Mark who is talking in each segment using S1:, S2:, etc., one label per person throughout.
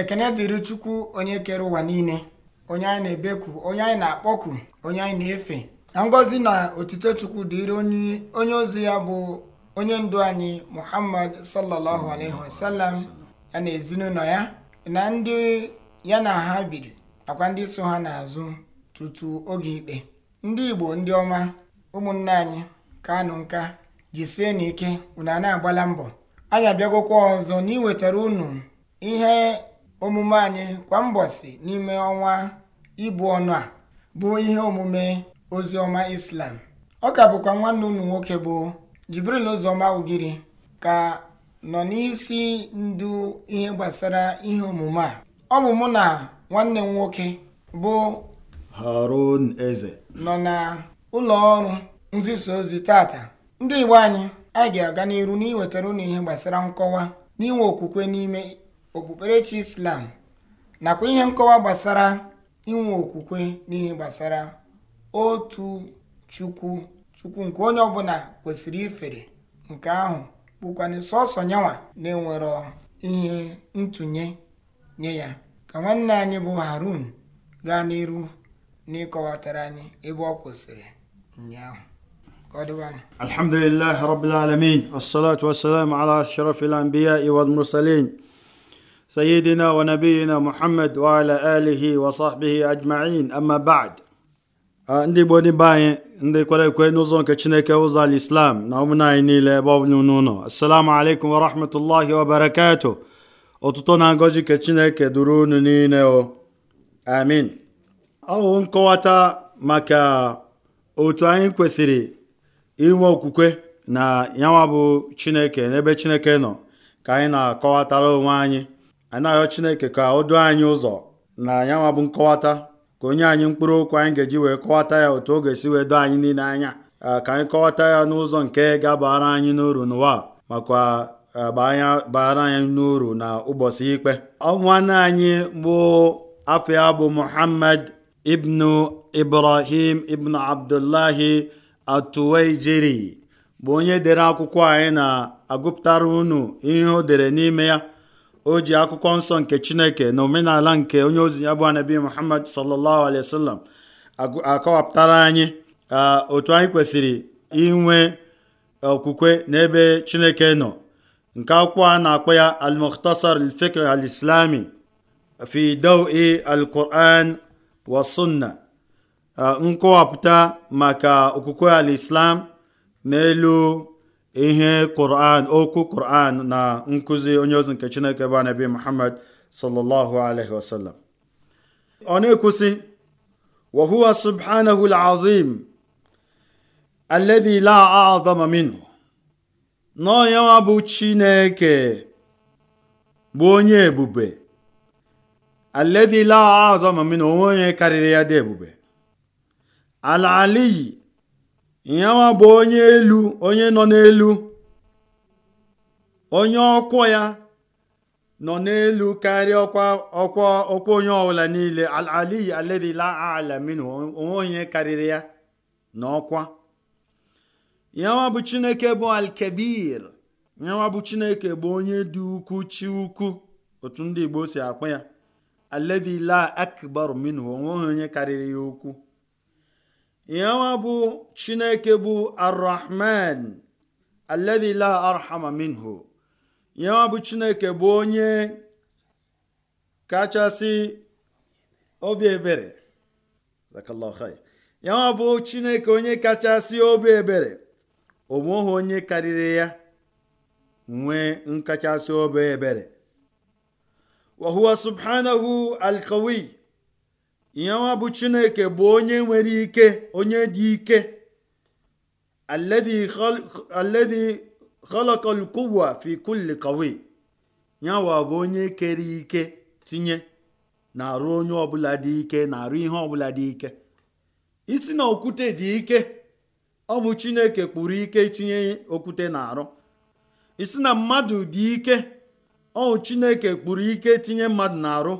S1: ekene dịrị chukwu onye kere ụwa niile onye anyị na-ebeku onye anyị na-akpọku onye anyị na-efe na ngọzi na otito chukwu dịrị onye ozi ya bụ onye ndu anyị muhammad sallallahu alaihi wasallam ya na ezinụlọ ya na ndị ya na ha biri nakwa ndị so ha n'azụ tutu oge ikpe ndị igbo ndị ọma ụmụnne anyị anụ nka jisie n'ike unu a na-agbala mbọ anyị abịagokwa ọzọ na iwetara unu ihe omume anyị kwa mbọsị n'ime ọnwa ibu ọnụ a bụ ihe omume ozi ọma islam ọ ka bụkwa nwanne unu nwoke bụ jibril ụzọma ugiri ka nọ n'isi ndu ihe gbasara ihe omume a ọ bụ mụ na nwanne m nwoke bụ
S2: harun eze
S1: nọ na ụlọ ọrụ nzisa ozi tata ndị igbo anyị anyị ga-aga n'iru n'iwetara ụnụ ihe gbasara nkọwa n'inwe okwukwe n'ime okpukperechi islam nakwa ihe nkọwa gbasara inwe okwukwe n'ihe gbasara otu chukwu chukwu nke onye ọbụla kwesịrị ifere nke ahụ bụkwana sọsọ nyawa na enwere ihe ntụnye nye ya ka nwanne anyị bụ harun gaa n'iru n'ịkọwatara anyị ebe ọ kwụsịrị ụnyaahụ
S2: alhamdulilahi rabbil alamin wassalatu wassalamu ala iwad mursalin سيدنا ونبينا محمد وعلى آله وصحبه أجمعين أما بعد ndị Igbo ndị be anyị ndị kwere ekwe n'ụzọ nke Chineke ụzọ al-Islam na ụmụnne anyị niile ebe ọbụla n'ụlọ assalamu alaikum wa rahmatullahi wa barakatuh ọtụtụ na ngọzi nke Chineke duru unu niile o amin ọwụ nkọwata maka otu anyị kwesịrị inwe okwukwe na yanwa bụ Chineke n'ebe Chineke nọ ka anyị na-akọwatara onwe anyị anyị na chineke ka o duo anyị ụzọ na yanwa bụ nkọwata ka onye anyị mkpụrụ okwu anyị ga-eji wee kọwata ya otu o ga-esi wee doo anyị niile anya ka anyị kọwata ya n'ụzọ nke ga-abara anyị n'uru n'ụwa makwa baara anyị n'uru na ụbọchị ikpe nwanne anyị bụ afọ ya bụ muhammad ibnu ibrahim ibnu abdullahi atuwaijiri bụ onye dere akwụkwọ anyị na-agụpụtara unu ihe o dere n'ime ya o ji akwụkwọ nsọ nke chineke na omenala nke onye ozi ya bụ anabi muhammad sallallahu alaihi wasallam akọwapụtara anyị otu anyị kwesịrị inwe okwukwe n'ebe chineke nọ nke akwụkwọ a na-akpọ ya al-mukhtasar al-fiqh al-islami fi al wa sunna nkọwapụta maka okwukwe al n'elu ihe Quran okwu Quran na nkụzi onye ozi nke Chineke bụ anabi Muhammad sallallahu alaihi wasallam ọ na-ekwusị wa subhanahu al-azim la a'zama minhu n'onye bụ Chineke bụ onye ebube alladhi la a'zama minhu onye karịrị ya dị ebube al-aliyi nyanwa bụ onye elu onye nọ n'elu onye ọkwọ ya nọ n'elu karịa ọkwa ọkwa ọkwa onye ọbụla niile alali ala minu onwe onye karịrị ya na ọkwa nyanwa bụ chineke bụ alkebir nyanwa bụ chineke bụ onye dị ukwu chi ukwu otu ndị igbo si akpọ ya aledila akbar minu onwe onye karịrị ya ukwu yanwa bụ chineke bụ arrahman alladhi la arhama minhu yanwa bụ chineke bụ onye kachasị obi ebere yanwa bụ chineke onye kachasị obi ebere o nweghị onye karịrị ya nwee nkachasị obi ebere wa subhanahu alqawi ihe bụ chineke bụ onye nwere ike onye dị ike alladhi khalaqa al-quwwa fi kulli qawi nyawa bụ onye kere ike tinye na-arụ onye ọbụla dị ike na-arụ ihe ọbụla dị ike isi na okwute dị ike ọ bụ chineke kpụrụ ike tinye okwute na-arụ isi na mmadụ dị ike ọ bụ chineke kpụrụ ike tinye mmadụ na-arụ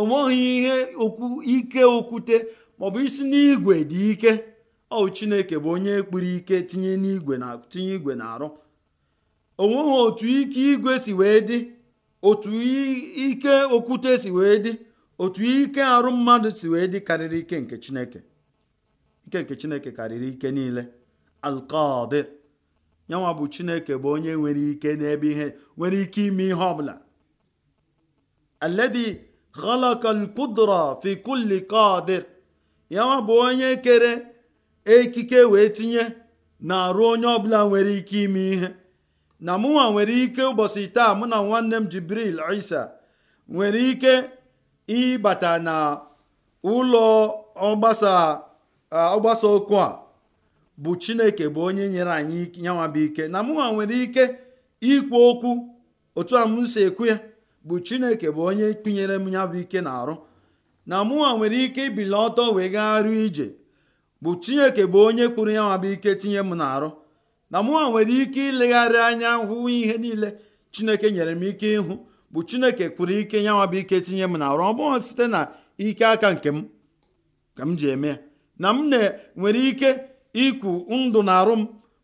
S2: onweghị ihe okwu ike okwute maọbụ isi n'igwe dị ike ọ chineke bụ onye kpụrụ ike tinye n'igwe na tinye igwe na-arụ onweghị otu ike igwe si wee dị otu ike okwute si wee dị otu ike arụ mmadụ si wee dị karịrị ike nke chineke ike nke chineke karịrị ike niile alkọd yanwa bụ chineke bụ onye nwere ike n'ebe ihe nwere ike ime ihe ọbụla aledi khalaqal qudra fi kulli qadir bụ onye kere ekike wee tinye na-arụ onye ọbụla nwere ike ime ihe na mụnwa nwere ike ụbọchị taa mụ na nwanne m jibril isa nwere ike ịbata na ụlọ ọgbasa ọgbasa okwu a bụ chineke bụ onye nyere anyị yanwa ike na mụnwa nwere ike ikwu okwu otu a m si ekwu ya bụ chineke bụ onye tinyere m ya bụ ike na-arụ na mụnwa nwere ike ibili ọtọ wee gagharịa ije bụ chineke bụ onye kpụrụ ya nwa bụ ike tinye m na-arụ na mụnwa nwere ike ilegharị anya hụ ihe niile chineke nyere m ike ịhụ bụ chineke kpụrụ ike ya bụ ike tinye m na-arụ ọ bụghị site na ike aka nke m ka m ji eme ya na m nwere ike ikwu ndụ na arụ m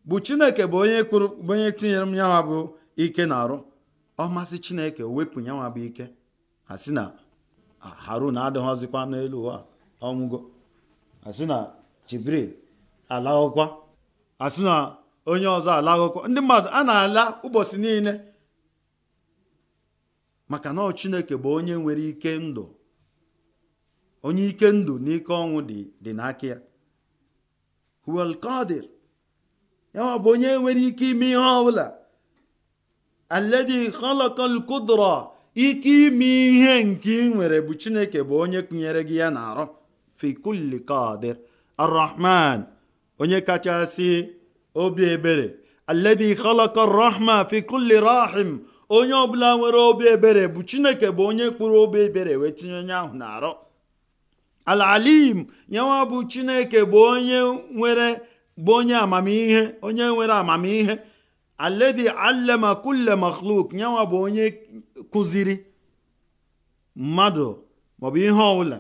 S2: bụ chineke bụ onye kpụrụ onye tinyere m ya bụ ike na-arụ ọ masị chineke wepụ nyanwa bụ ike a sị na harun adịghịzikwa n'elu ụwa ọnwụgo a sị na jibril alaghọkwa a sị na onye ọzọ alaghọkwa ndị mmadụ a na-ala ụbọchị niile maka na chineke bụ onye nwere ike ndụ onye ike ndụ na ike ọnwụ dị n'aka ya huwal onye nwere ike ime ihe ọbụla alladhi khalaqal qudra ike ime ihe nke ị nwere bụ chineke bụ onye kụnyere gị ya na-arụ fi kulli qadir arrahman onye kachasị obi ebere alladhi khalaqa rahma fi kulli rahim onye ọbụla nwere obi ebere bụ chineke bụ onye kpụrụ obi ebere wee tinye onye ahụ na-arụ alalim yanwa bụ chineke bụ onye nwere bụ onye amamihe onye nwere amamihe alladhi allama kulle makhluk nyanwa bụ onye kụziri mmadụ maọbụ ihe ọbụla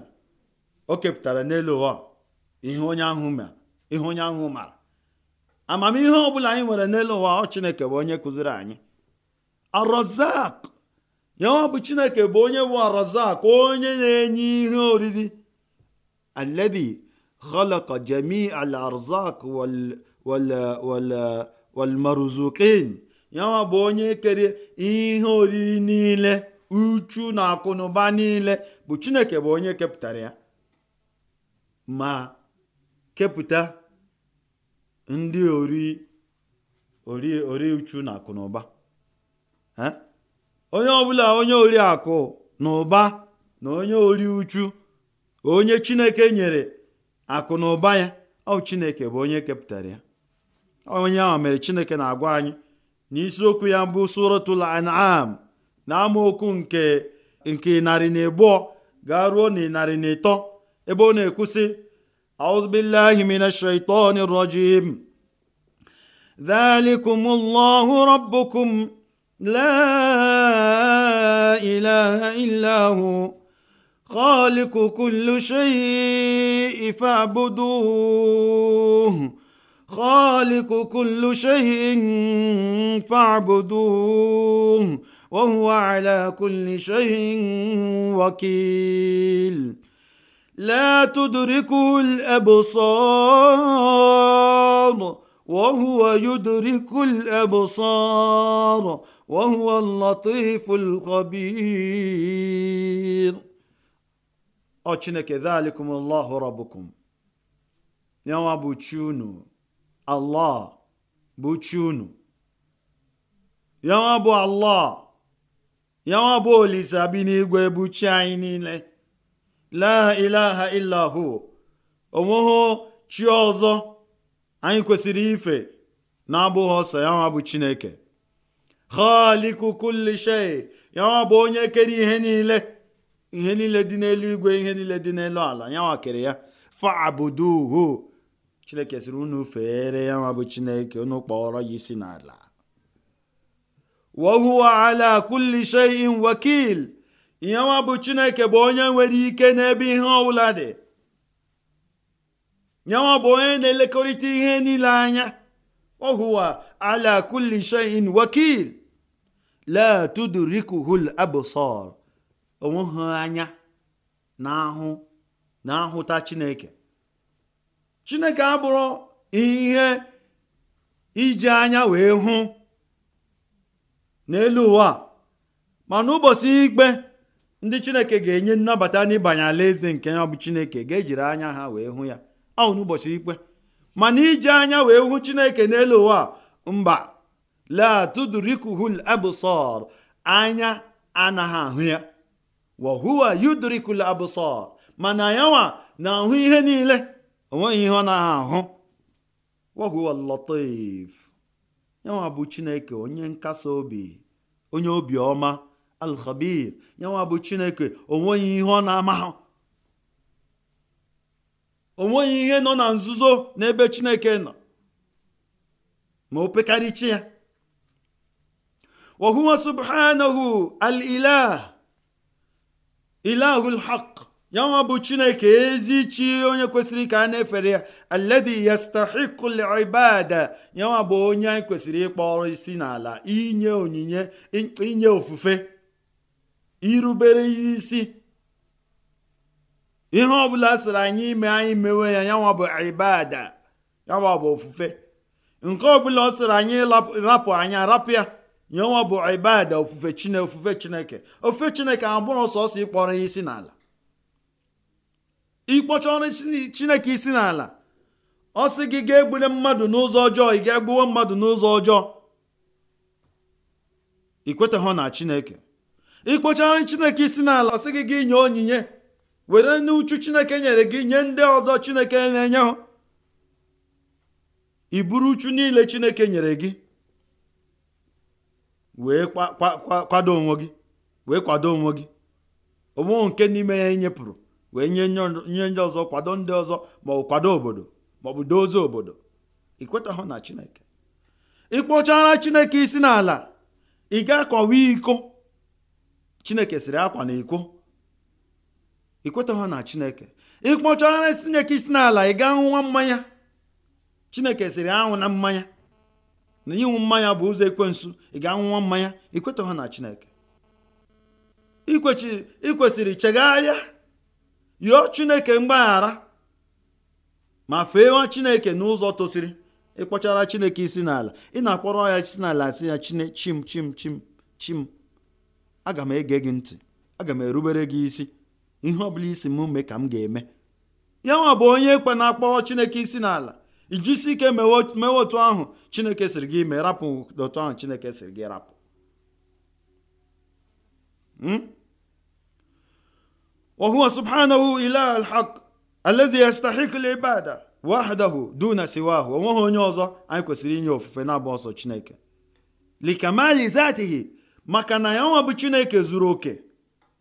S2: o kepụtara n'elu ụwa ihe onye ahụ mara amamihe ọbụla anyị nwere n'elu ụwa ọ chineke bụ onye kụziri anyị arozak nyanwa bụ chineke bụ onye bụ arozak onye na-enye ihe oriri alladhi khalaqa jami al arzak wal wal walmaruzukin yanwa bụ onye kere ihe oriri niile uchu na akụnụba niile bụ chineke bụ onye kepụtara ya ma kepụta ndị ori ori ori uchu na akụnụba onye ọbụla onye ori akụ na ụba na onye ori uchu onye chineke nyere akụ na ụba ya ọ chineke bụ onye kepụtara ya onye ahụ mere chineke na-agwa anyị na isiokwu ya mbụ suratul an'am na amaokwu nke nke narị na abụọ gaa ruo na narị na ịtọ ebe ọ na-ekwusị auzubillahi minash shaitani rajim ذلكم الله ربكم لا إله إلا هو خالق كل شيء فاعبدوه olikukulu sku k ltukuls ohuudkuosou ohuf chinekelikumh awachunu Allah bụ chi unu yanwa bụ Allah yanwa bụ olise n'igwe bụ chi anyị niile la ilaha illa onweghị chi ọzọ anyị kwesịrị ife na-abụghị ọsọ yanwa bụ Chineke khaliku kulli shay yanwa bụ onye kere ihe niile ihe niile dị n'elu igwe ihe niile dị n'elu ala yanwa kere ya fa'buduhu chineke sịrị unu feere ya nwa bụ chineke unu kpọrọ ya isi n'ala wa huwa ala kulli shay'in wakil ihe nwa bụ chineke bụ onye nwere ike n'ebe ihe ọbụla dị nyanwa bụ onye na-elekọrịta ihe niile anya ohuwa huwa ala kulli shay'in wakil la tudrikuhul absar anya na ahụ na ahụta chineke chineke abụrụ ihe iji anya wee hụ n'elu ụwa ma n'ụbọchị ikpe ndị chineke ga-enye nnabata n'ịbanye alaeze nke ya bụ chineke ga-ejiri anya ha wee hụ ya ọ n'ụbọchị ikpe mana iji anya wee hụ chineke n'elu ụwa mba latudrikuhul absar anya anaghị ahụ ya wahuwa yudrikul absar mana yanwa na-ahụ ihe niile onweghị ihe ọ na ahụ wahuwa latif yanwa bụ chineke onye nkasi obi onye obi ọma alkhabir yanwa bụ chineke onweghị ihe ọ na-amahụ onweghị ihe nọ na nzuzo n'ebe chineke nọ ma o pekarịchi ya wahuwa subhanahu al ilah ilahul haq ya nwa bụ chineke ezi chi onye kwesịrị ka a na-efere ya alladhi yastahiqul ibada ya nwa bụ onye anyị kwesịrị ịkpọrọ isi n'ala inye onyinye inye ofufe irubere isi ihe ọbụla sịrị anyị ime anyị mewe ya ya nwa bụ ibada ya nwa bụ ofufe nke ọbụla ọ sịrị anyị rapụ anya rapụ ya ya nwa bụ ibada ofufe ofufe chineke ofufe chineke abụrụ sọsọ ịkpọrọ ya isi n'ala ikpọcha ọrụ chineke isi n'ala ọ sị gị ga egbule mmadụ n'ụzọ ọjọọ ị ga-egbuwe mmadụ n'ụzọ ọjọọ ikwetaghọ na chineke ọrụ chineke isi n'ala ọ sị gị gị nye onyinye were n'uchu chineke nyere gị nye ndị ọzọ chineke na-enye ha iburu uchu niile chineke nyere gị wee kwado onwe gị wee kwado onwe gị onwe nke n'ime ya inyepụrụ e wee nye nye ndị ọzọ kwado ndị ọzọ ma ọ kwado obodo ma ọ bụ dozie obodo ikwetahụ na chineke ịkpọchara chineke isi n'ala ị ga-akọwa iko chineke sịrị akwa na iko ikwetahụ na chineke ịkpọchara chineke isi n'ala ị gaa nwa mmanya chineke sịrị anwụ na mmanya na ịṅụ mmanya bụ ụzọ ekwensu ị ga-anwụwa mmanya ikwetahụ na chineke ikwesịrị chegharịa yọọ chineke mgbaghara ma fee chineke n'ụzọ tosiri ịkpọchara chineke isi n'ala ị na-akpọrọ ya isi n'ala asị ya chine chim chim chim chim aga m ege gị ntị aga m erubere gị isi ihe ọ bụla isi m mee ka m ga-eme ya nwa bụ onye ekwe na-akpọrọ chineke isi n'ala ijisi ike mewe otu ahụ chineke siri gị ime rapụ otu ahụ chineke siri gị rapụ hmm? oh sban ihkalsthikbd whddn sahụ onwe ha onye ọzọ anyị kwesịrị inye ofufe na abụọ ọsọ chineke ikmzth aaa ya nwa bụ chineke rok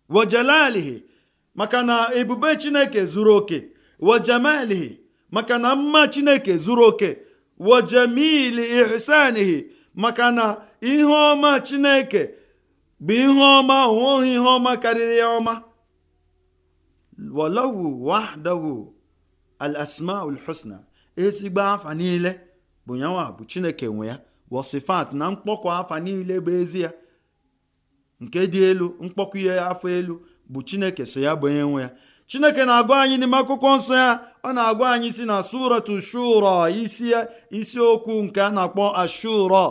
S2: wjelalhi makana ebube chineke zuru oke maka na mma chineke zuru oke wajamil hisanhi maka na iheoma chineke bụ ihe oma onwe ihe oma karịra ya ọma walahu wahdahu al asmaul husna ezigbo afa niile bụ nyanwa bụ chineke nwe ya wasifat na mkpọkọ afa niile bụ ezi ya nke dị elu mkpọkọ ihe afọ elu bụ chineke so ya bụ onye nwe ya chineke na-agwa anyị n'ime akwụkwọ nsọ ya ọ na-agwa anyị si na suratu shura isi isiokwu nke a na-akpọ ashura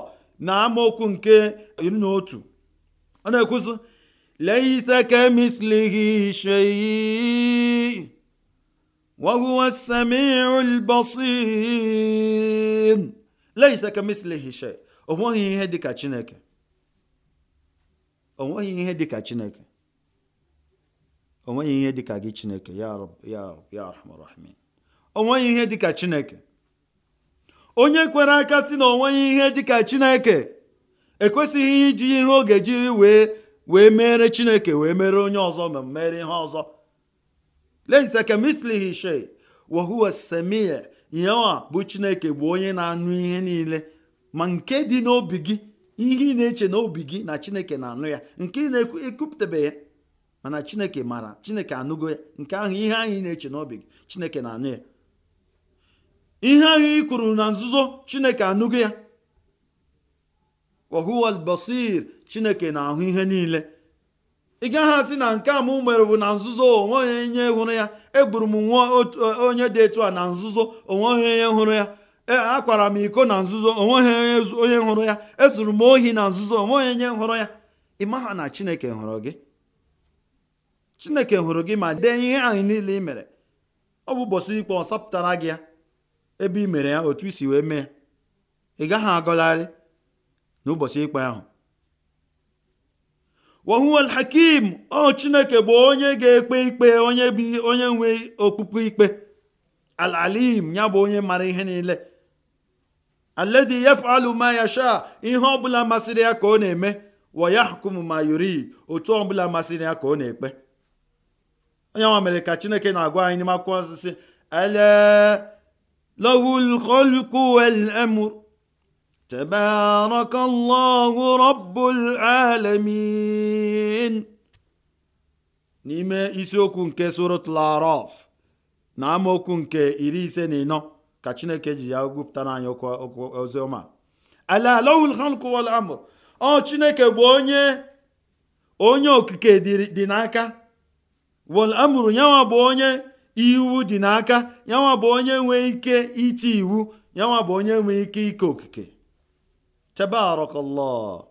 S2: na amaokwu nke iri na otu ọ na-ekwuzi ليس كمثله شيء وهو السميع البصير ليس كمثله شيء ihe dịka chineke o nweghị ihe dịka chineke onye kwere aka si na o nweghị ihe dịka chineke ekwesịghị iji ihe ọ ga-ejiri wee wee mere chineke wee mere onye ọzọ ma mere ihe ọzọ lense kemislihi she wahuwa semie yewa bụ chineke bụ onye na-anụ ihe niile ma nke dị n'obi gị ihe ị na-eche n'obi gị na chineke na-anụ ya nke ị na-ekwupụtabe ya mana chineke mara chineke anụgo ya nke ahụ ihe ahụ ị na-eche n'obi gị chineke na-anụ ya ihe ahụ ị kwuru na nzuzo chineke anụgo ya wahuwal basir chineke na-ahụ ihe niile ị gaghị asị na nke a m mere bụ na nzuzo onwe onye nye hụrụ ya egburu m nwa onye dị etu a na nzuzo onwe onye hụrụ ya akwara m iko na nzuzo onwe onye hụrụ ya ezuru m ohi na nzuzo onwe onye hụrụ ya ị maha na chineke hụrụ gị chineke hụrụ gị ma dee ihe anyị niile ị mere ọ bụ ụbọchị ikpe ọ sapụtara gị ya ebe ị mere ya otu isi wee mee ị gaghị agọgharị n'ụbọchị ikpe ahụ wahuwal hakim ọ chineke bụ onye ga-ekpe ikpe onye bi onye nwe okpukpe ikpe alalim ya bụ onye mara ihe niile aledi yafalụ ma yasha ihe ọbụla masịrị ya ka ọ na-eme wayahkum ma yurid otu ọbụla masịrị ya ka ọ na-ekpe onye nwa mere ka chineke na-agwa anyị n'ime akwụkwọ nsịsị ele تبارك الله رب العالمين n'ime isiokwu nke suratul araf na amaokwu nke iri ise na ịnọ ka chineke ji ya gwupụtara anyị oziọma ala lahul khalq ọ chineke bụ onye okike dị n'aka wal amru yanwa onye iwu dị n'aka yanwa onye nwe ike iti iwu yanwa bụ onye ike ike okike تبارك الله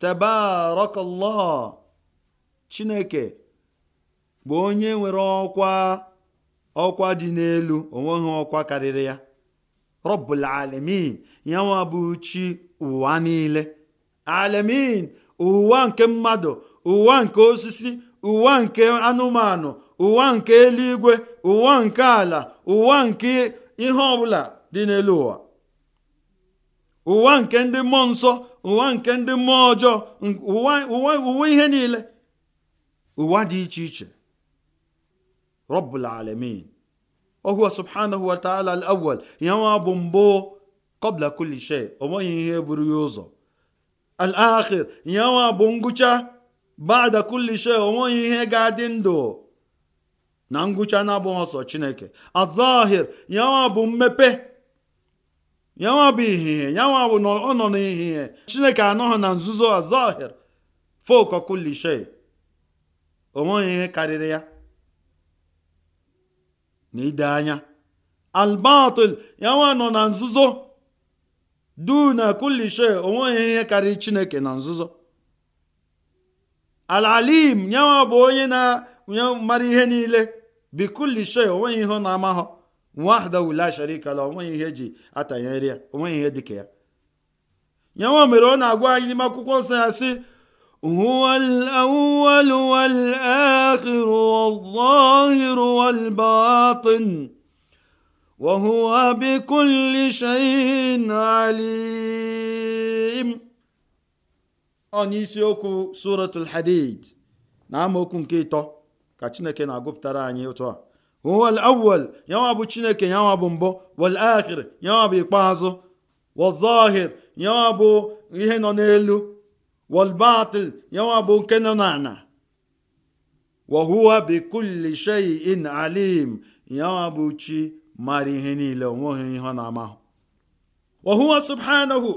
S2: تبارك الله chineke bụ onye nwere ọkwa ọkwa dị n'elu onweghị ọkwa karịrị ya rọbụl alamin ya nwa bụ chi ụwa niile alamin ụwa nke mmadụ ụwa nke osisi ụwa nke anụmanụ ụwa nke eluigwe ụwa nke ala ụwa nke ihe ọbụla dị n'elu ụwa ụwa nke ndị mmụọ nsọ ụwa nke ndị mmụọ ọjọọ ụwa ihe niile ụwa dị iche iche rọbụl alamin ohu subhanahu wa ta'ala al-awwal ya nwa bụ mbụ kobla kulishe shay ihe buru ya ụzọ al-akhir ya nwa bụ ngwụcha bada kulishe shay ihe ga-adị ndụ na ngwụcha na-abụghị ọsọ chineke azahir ya nwa bụ mmepe yanwa bụ ihihie yanwa bụ na ọ nọ n'ihihie chineke anọghị na nzuzo azahir folk kulishe onweghị ihe karịrị ya na ide anya albatul yanwa nọ na nzuzo du na kulishe onweghị ihe karịrị chineke na nzuzo alalim yanwa bụ onye na mara ihe niile bikulishe onweghị ihe ọ na-amahọ wahdahu la sharika la onweghị ihe eji atanyere ya onweghị ihe dịka ya ya nwa mere ọ na-agwa anyị n'ime akwụkwọ nsọ ya sị هو الأول والآخر suratul hadid na amaokwu nke ịtọ ka chineke na-agụpụtara anyị otu a huwa al-awwal bụ chineke yanwa bụ mbụ wal akhir yanwa bụ ikpeazụ wazahir yanwa bụ ihe nọ n'elu wal batil yanwa bụ nke nọ n'ala wahuwa huwa shay'in alim yanwa bụ chi mara ihe niile onweghị ihe ọ na-amahụ wa subhanahu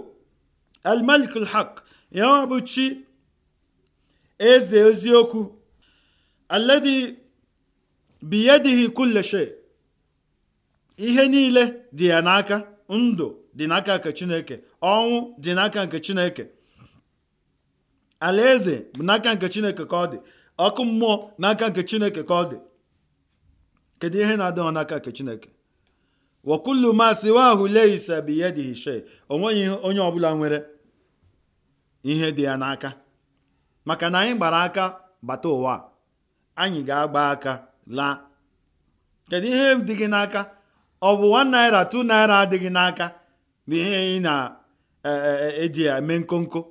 S2: al-malik al-haq bụ chi eze eziokwu alladhi biyadihi kulle ihe niile dị ya n'aka ndụ dị n'aka nke chineke ọnwụ dị n'aka nke chineke alaeze bụ n'aka nke chineke ka ọ dị ọkụ mmụọ n'aka nke chineke ka ọ dị kedu ihe na-adịghị n'aka nke chineke wakullu ma siwahu laysa biyadihi shay onweghị onye ọbụla nwere ihe dị ya n'aka maka na anyị gbara aka bata ụwa anyị ga-agba aka laa kedu ihe dị gị n'aka ọ bụ 1 naira 2 naira adịghị n'aka bụ ihe ị na-eji e, e, e ya eme nkonko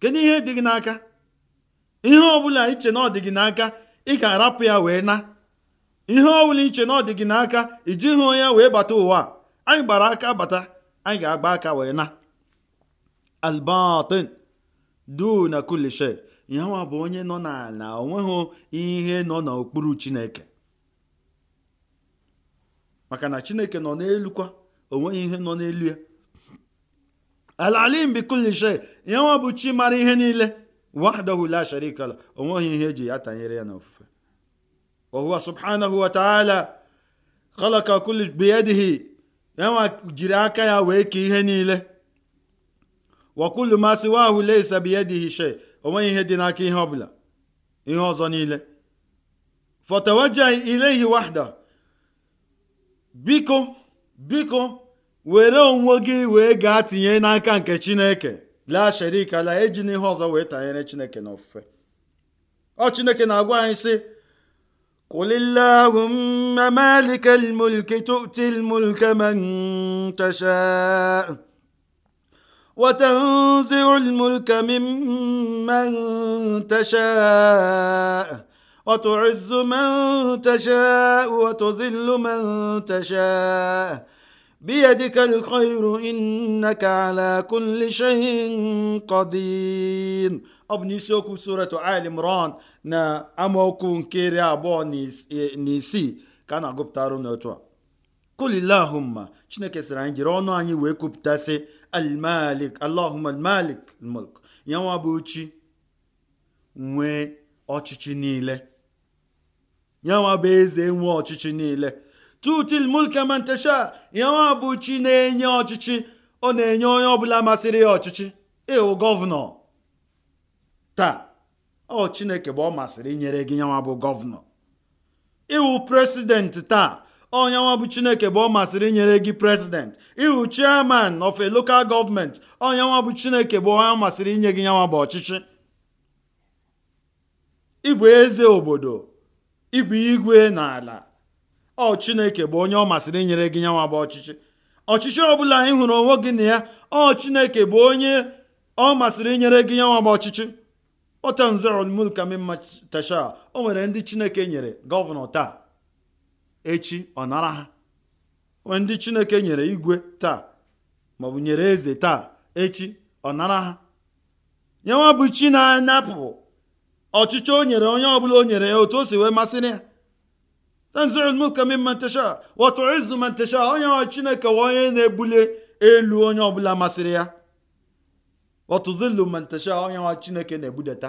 S2: kedu ihe dị gị n'aka ihe ọbụla iche na ọ dị gị n'aka ị ka arapụ ya wee na ihe ọbụla iche na ọ dị gị n'aka ijighị onye wee bata ụwa anyị gbara aka bata anyị ga-agba aka wee na albatin duna kulli shay yanwa bụ onye nọ n'ala onweghị ihe nọ n'okpuru chineke maka na chineke nọ n'elu kwa onweghị ihe nọ n'elu ya alalim bikulishe yanwa bụ chi mara ihe niile wahdahu la sharika la onweghị ihe eji ya tanyere ya n'ofufe wahuwa subhanahu wa ta'ala khalaqa kulli biyadihi yanwa jiri aka ya wee kee ihe niile wa kullu ma siwahu laysa biyadihi o ihe dị n'aka ihe ọbụla ihe ọzọ niile fatawaja ileghi wada biko biko were onwe gị wee gaa tinye n'aka nke chineke laa sharika laa eji n'ihe ọzọ wee tanyere chineke n'ọfụfe ọ chineke na-agwa anyị sị قل وتنزع الملك ممن تشاء وتعز من تشاء وتذل من تشاء بيدك الخير إنك على كل شيء قدير ọ bụ n'isiokwu suratu al imran na amaokwu nke iri abụọ na isii ka na n'otu a mma chineke sịrị anyị jiri ọnụ anyị wee kwupụtasị almalik allahumma almalik mulk ya nwa bụ chi nwee ọchịchị niile ya nwa bụ eze nwee ọchịchị niile tutil mulka mantasha ya nwa bụ chi na-enye ọchịchị ọ na-enye onye ọbụla masịrị ya ọchịchị ịwụ gọvanọ taa ọ chineke bụ ọ masịrị inyere gị nyanwa bụ gọvanọ ịwụ president taa onye nwa bụ chineke bụ ọ masịrị inyere gị president ịhụ chairman of a local government onye nwa bụ chineke bụ onye masịrị inye gị nyanwa bụ ọchịchị ịbụ eze obodo ịbụ igwe na ala ọ chineke bụ onye ọ masịrị inyere gị nyanwa bụ ọchịchị ọchịchị ọ bụla ị hụrụ onwe gị na ya ọ chineke bụ onye ọ masịrị inyere gị nyanwa bụ ọchịchị otanzerolmulkamima tasha o nwere ndị chineke nyere gọvanọ taa echi ọ nara ha ndị chineke nyere igwe taa maọbụ nyere eze taa echi ọ nara ha nyenwa bụ chi na-anapụ ọchịchị o nyere onye ọbụla o nyere ya otu o si wee masịrị ya tanzil mulka mimman onye nwe chineke wa onye na-ebuli elu onye ọbụla masịrị ya wa tuzillu man onye nwe chineke na-ebudata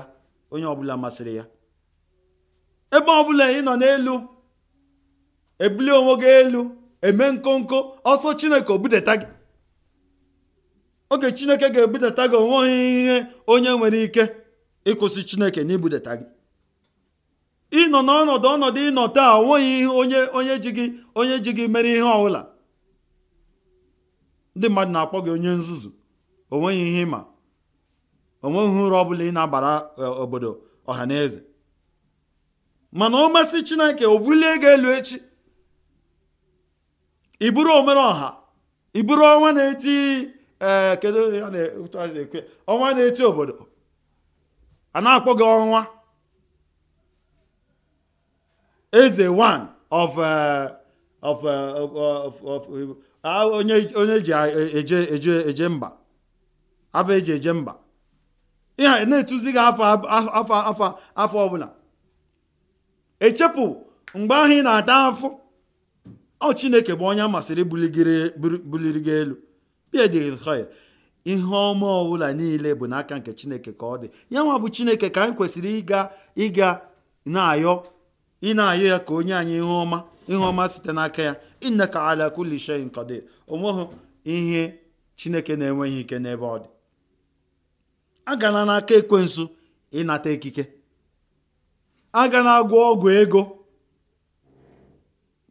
S2: onye ọbụla masịrị ya ebe ọbụla ị nọ n'elu ebuli onwe gị elu eme nkonko ọsọ chineke obudeta gị oge chineke ga-ebudata gị onweghị ihe onye nwere ike ịkwụsị chineke na gị ịnọ n'ọnọdụ ọnọdụ ịnọ taa onweghị ihe onye onye ji gị onye ji gị mere ihe ọbụla ndị mmadụ na-akpọ gị onye nzuzu onweghị ihe ịma onweghị uru ọ bụla ị na-abara e, obodo ọha na eze mana ọ masị chineke o bulie gị elu echi iburu omere ọha iburu ọnwa na-eti ee eh, kedu ya na-ekwe ọnwa na-eti obodo a na-akpọ gị ọnwa eze one of eh, eh, of of onye eji eje eje eje mba afọ eji eje mba ihe na-etuzi gị afọ afọ afọ afọ ọbụla echepụ mgbe ahụ ị na-ata afọ ọ chineke bụ onye masịrị buliri gị elu bidil e khoir ihe ọma ọbụla niile bụ n'aka nke chineke ka ọ dị ya nwa bụ chineke ka anyị kwesịrị ịga ịga na-ayọ ị na-ayọ ya ka onye anyị ihe ọma ihe ọma site n'aka ya ka ala kulli shay'in qadir onweghị ihe chineke na-enweghị ike n'ebe ọ dị agala n'aka ekwensu ịnata ikike agala agwọ ọgwụ ego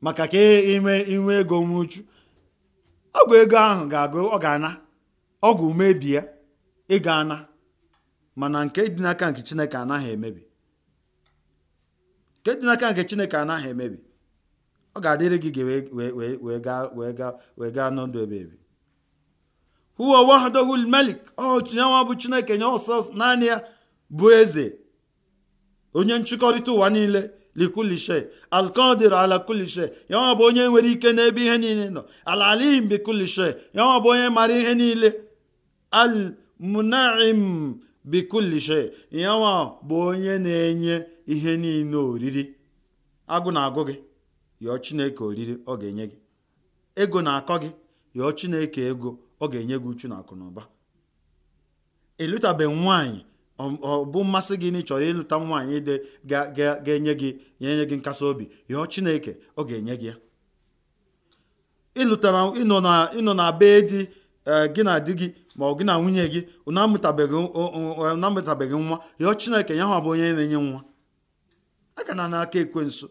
S2: maka ka e ime inwe ego nwuchu ọgwụ ego ahụ ga-agụ ọ ga-ana ọgwụ mebi ya ịga ana mana nke dị n'aka nke chineke anaghị emebi nke dị n'aka nke chineke anaghị emebi ọ ga-adịrị gị gị wee gaa n'ọdụ ebe ebi huwa wahdahu bụ chineke nye ọsọ naanị ya bụ eze onye nchịkọrịta ụwa niile likulishe alkadir ala kulishe ya bụ onye nwere ike n'ebe ihe niile nọ alalim bi kulishe ya bụ onye mara ihe niile almunaim bi kulishe yanwa bụ onye na-enye ihe niile oriri agụ na-agụ gị yọọ chineke oriri ọ ga-enye gị ego na-akọ gị yọọ chineke ego ọ ga-enye gị uchu na akụ na ụba ọ bụ mmasị gị na ị chọrọ ịlụta nwaanyị dị ga-enye gị enye gị nkasi obi yọọ Chineke ọ ga-enye gị ya ịlụtara ịnọ na be di e, gị na di gị ma ọ gị na nwunye gị na e, nwa yọọ Chineke ya hụ bụ onye na-enye nwa Aga na n'aka ekwensu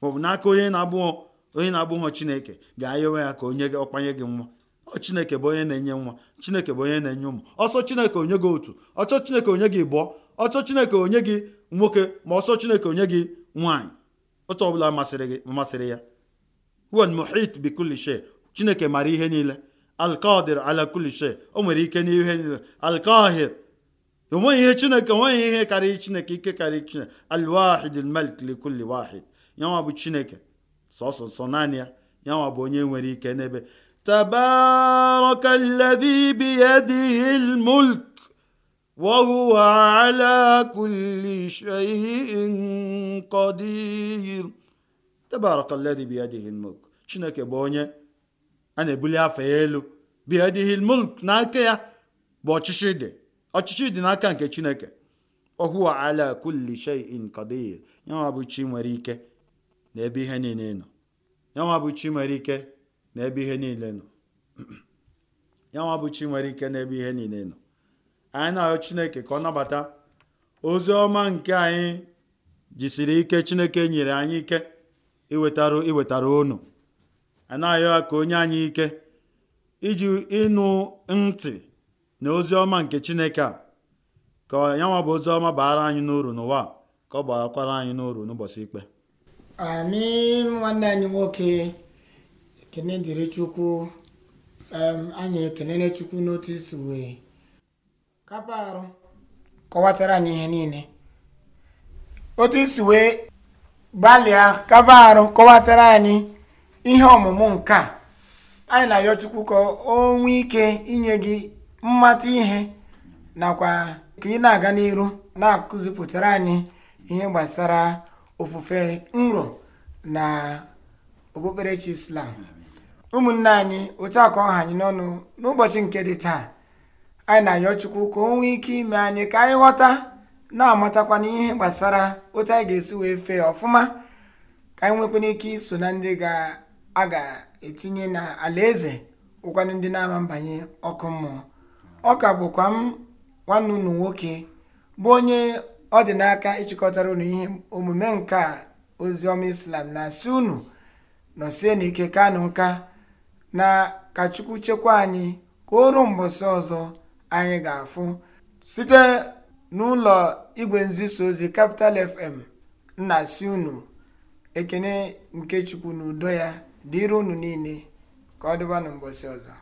S2: maọbụ n'aka onye na-abụghọ onye na-abụghọ Chineke ga-ayọwe ya ka onye ọkpanye gị nwa ọ chineke bụ onye na-enye nwa chineke bụ onye na-enye ụmụ ọsọ chineke onye gị otu ọchọ chineke onye gị bụọ ọchọ chineke onye gị nwoke ma ọsọ chineke onye gị nwaanyị otu ọbụla masịrị gị masịrị ya huwa muhit bi kulli shay chineke mara ihe niile alkadir ala o nwere ike n'ihe niile alkahir onweghị ihe chineke onweghị ihe karịrị chineke ike karịrị chineke alwahid almalik li wahid yanwa bụ chineke sọsọ sọ naanị ya yanwa bụ onye nwere ike n'ebe تبارك الذي بيده الملك وهو على كل شيء قدير تبارك الذي بيده الملك chineke bụ onye a na-ebuli afọ elu biadihi mulk n'aka ya bụ ọchịchị dị ọchịchị dị n'aka nke chineke ohuwa ala kulli shay'in qadir yanwa bụ nwere ike ebe ihe niile nọ nwere ike n'ebe ihe niile nọ ya bụ chi nwere ike n'ebe ihe niile nọ anyị na ahụ chineke ka ọ nabata ozi ọma nke anyị jisiri ike chineke nyere anyị ike iwetara iwetara unu a na ahụ ya ka onye anyị ike iji ịnụ ntị na ozi ọma nke chineke a ka ya bụ ozi ọma baara anyị n'uru n'ụwa ka ọ barakwara anyị n'uru n'ụbọchị ikpe
S1: nwanne anyị nwoke kene dịrị chukwu anyị ekelere chukwu n'otu isi wee kapa arụ kọwatara anyị ihe niile otu isi wee gbalịa kapa arụ kọwatara anyị ihe ọmụmụ nke a anyị na-ayọ chukwu ka o nwee ike inye gị mmata ihe nakwa ka ị na-aga n'iru na-akụzipụtara anyị ihe gbasara ofufe nro na okpukperechi islam ụmụnne anyị otu akọ ọha anyị n'ọnụ n'ụbọchị nke dị taa anyị na-ayọ chukwu ka o nwee ike ime anyị ka anyị ghọta na-amatakwa n'ihe gbasara otu anyị ga-esi wee fee ọfụma ka anyị nwekwana ike iso na ndị a ga-etinye na alaeze ụkwanụ ndị na-ama mbanye ọkụ mmụọ ọ ka bụkwa m nwanne unu nwoke bụ onye ọ dị n'aka ịchịkọtara ụnụ ihe omume nke ozi ọma islam na-asị unu nọsie n'ike kanụ nka na ka Chukwu chekwaa anyị ka o ruo mbọsị ọzọ anyị ga-afụ site n'ụlọ igwe nzisa ozi Capital FM nna si unu ekene nke Chukwu na udo ya dịrị unu niile ka ọ dịba na mbọsị ọzọ